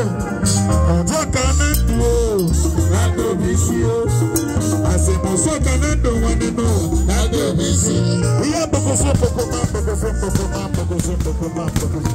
ọjọ́ kan ní dùn ó lágbo mi sí ó àṣepọ̀sọ́ kan ní dùn wọn nínú lágbo mi sí. iye bokosí boko máa bokosí boko máa bokosí boko máa bokosí.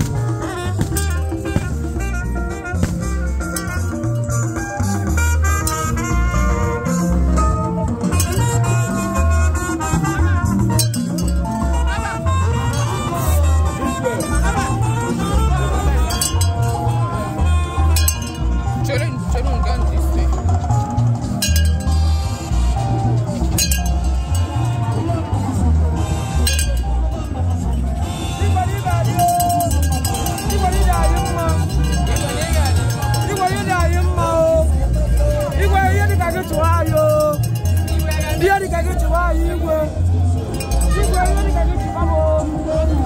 dịka gị chịwa anyị igwe igwe ihe dịka gị chịwa m